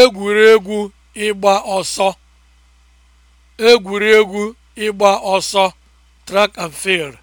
egwuregwu ịgba ọsọ egwuregwu ịgba ọsọ track and field